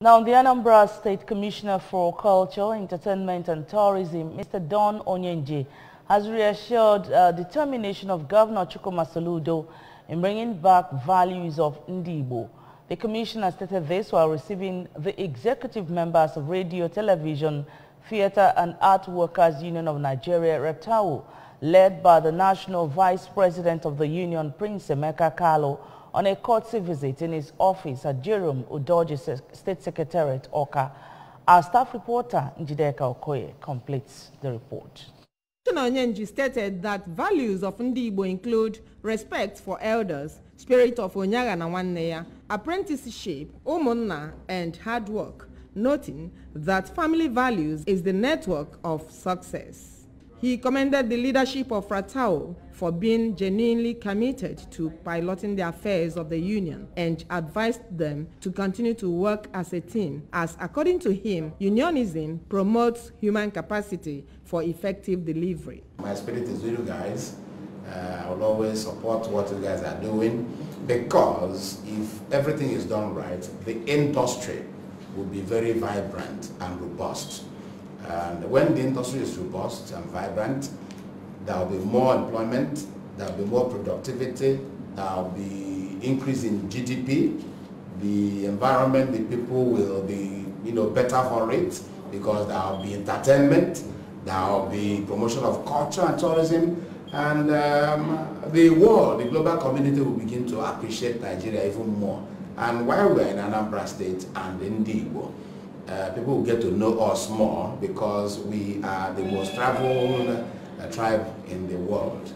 Now, the Anambra State Commissioner for Culture, Entertainment and Tourism, Mr. Don Onyenji, has reassured uh, determination of Governor Chukuma Soludo in bringing back values of Ndibo. The commissioner stated this while receiving the executive members of Radio, Television, Theatre and Art Workers Union of Nigeria, Retau, led by the National Vice President of the Union, Prince Emeka Kalo, on a courtesy visit in his office at Jerome Udoji State Secretariat, Oka. Our staff reporter, Njideka Okoye, completes the report. Commissioner Onyenji stated that values of Ndigbo include respect for elders, spirit of Onyaga na Wanneya, apprenticeship, umunna, and hard work, noting that family values is the network of success. He commended the leadership of Fratao for being genuinely committed to piloting the affairs of the union and advised them to continue to work as a team as according to him unionism promotes human capacity for effective delivery. My spirit is with you guys. Uh, I will always support what you guys are doing because if everything is done right, the industry will be very vibrant and robust. And when the industry is robust and vibrant, there will be more employment, there will be more productivity, there will be increase in GDP, the environment, the people will be you know, better for it because there will be entertainment, there will be promotion of culture and tourism, and um, the world, the global community will begin to appreciate Nigeria even more. And while we're in Anambra State and in Igbo, Uh, people will get to know us more because we are the most traveled uh, tribe in the world.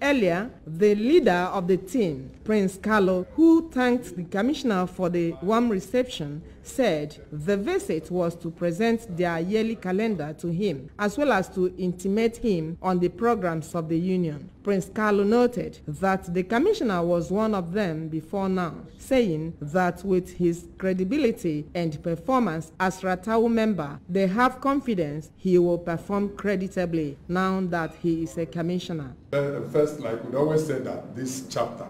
Earlier, the leader of the team, Prince Carlo, who thanked the commissioner for the warm reception, said the visit was to present their yearly calendar to him, as well as to intimate him on the programs of the union. Prince Carlo noted that the commissioner was one of them before now, saying that with his credibility and performance as Ratau member, they have confidence he will perform creditably now that he is a commissioner. Uh, first, like we always say that this chapter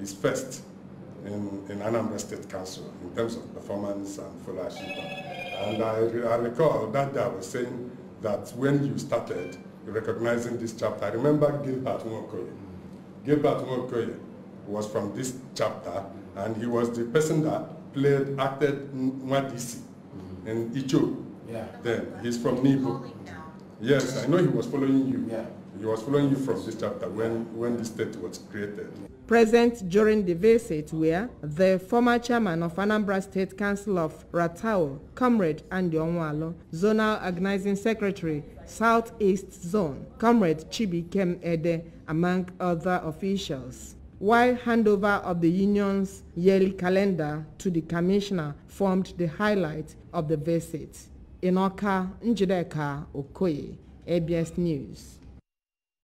is first in, in Anambra State Council in terms of performance and followership. And I, I recall that day I was saying that when you started recognizing this chapter, I remember Gilbert Nwokoye. Gilbert Nwokoye was from this chapter, and he was the person that played, acted Nwadisi mm-hmm. in Icho. Yeah. Then he's from Nibo. Yes, I know he was following you. Yeah. He was following you from this chapter when, when the state was created. Present during the visit were the former chairman of Anambra State Council of Ratao, Comrade Andy Onwalo, Zonal Organizing Secretary, Southeast Zone, Comrade Chibi Kem Ede, among other officials while handover of the union's yearly calendar to the commissioner formed the highlight of the visit. in Oka, Njideka Okoye, ABS News.